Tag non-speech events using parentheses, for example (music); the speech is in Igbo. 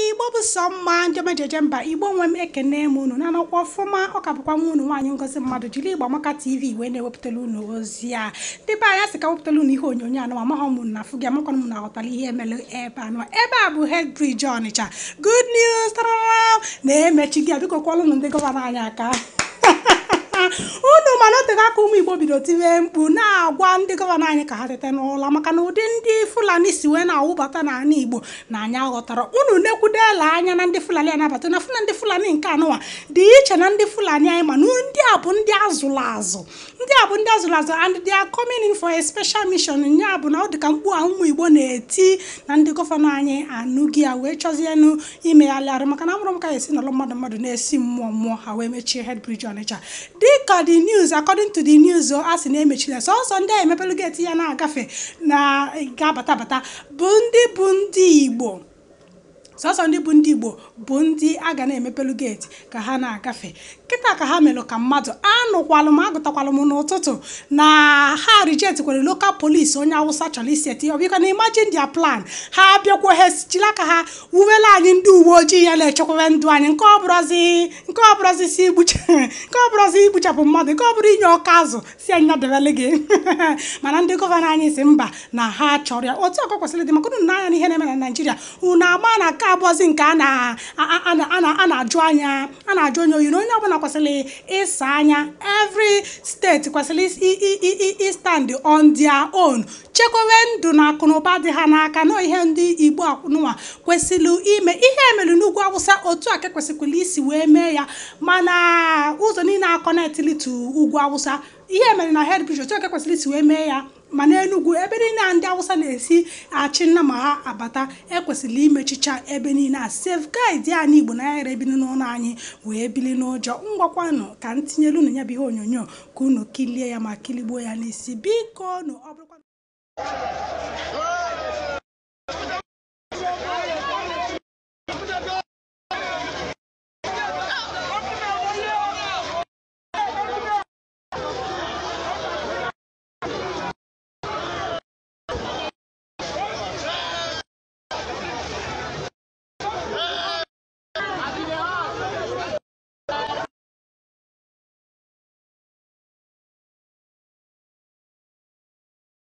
igbo bụ sọ mma ndị mejeje mba igbo nwe m ekene m unu na-anọkwa ọfụma ọka bụkwa nwa unu nwaanyị ngozi mmadụ jiri igbo amaka tv wee na ewepụtala unu ozi a ndị be anyị sị ka wepụtara unu ihe onyonyo anụ amaghọ m na afụ gị amakwana m na-aghọtara ihe emere ebe anụ ebe a bụ hed bridge ọnịcha good news na-emechi gị a biko ụnụ ndị gọvanọ anyị aka (laughs) unu ma otego aka ụmụ igbo bido tiwe mkpu na-agwa ndị gọvanọ anyị ka ha tete n'ụlọ maka na ụdị ndị fulani si wee na-awụbata n'ala igbo na anyị aghọtara unu nekwudela anya na ndị fulani anabata na funa ndị fulani nke anụwa dị iche na ndị fulani anyị ma ndị a bụ ndị azụlụ azụ ndị a bụ ndị azụlụ azụ and they are coming in for a special mission bụ na ọ dị ka mkpu a ụmụ igbo na-eti na ndị gọvanọ anyị anụghị ya wee chọzienụ imegharị arụ maka na amụrụ m ka esi n'ụlọ mmadụ mmadụ na-esi mmụọ mmụọ ha wee mechie head ọnịcha dịka the news according to the news a sị na emechila sọsọ ndị a pelu geti ya na-agafe na ga-abata bata bụ ndị bụ ndị igbo sọsọ ndị bụ ndị igbo bụ ndị a ga na-emepelu geti ka ha na-agafe kịta ka ha melụ ka mmadụ anụkwalụ m agụtakwalụ m n'ụtụtụ na ha rijetkwere lokal polisi onye awụsa chọrọ isi eti ọbịkwa na imajin dia plan ha bịakwa ha ka aka ha wuwela anyị ndị uwe ojii ya na-echekwaba ndụ anyị nke ọ bụrụzi si nke ọ (laughs) igbuchapụ mmadụ nke ọ bụrụ inye ọka azụ si anyị nadebele gị (laughs) mana ndị gọvanọ anyị si mba na ha chọrọ ya otu ọkọ kwesịrị dị maka unu na anya n'ihe na-eme na naijiria unu agba na aka abụọzi nke a na-ajụ anya a na-ajụ onye oyi na onye ọbụla kwesịrị ịsa anya evri steeti kwesịrị stand on their own chekwebe ndụ na akụnụba dị ha n'aka na ihe ndị igbo akwụnụwa kwesịrị ime ihe emere n'ugwu awụsa otu a ka e kwesịkwara isi wee mee ya mana ụzọ niile kọnetili tu ugwu awụsa ihe mere na hed bishop chike kwesịrị isi wee mee ya ma enugwu ebe niile a ndị awụsa na-esi achị nna ma ha abata ekwesịrị imechicha ebe niile a sef ya anyị igbo na yara ebili n'ụlọ anyị wee bili n'ụjọ ngwakwanụ ka m tinyere unu ya bụ ihe onyonyo ka unu kilie ya ma kiligbuo ya n'isi biko nụ ọ bụrụkwa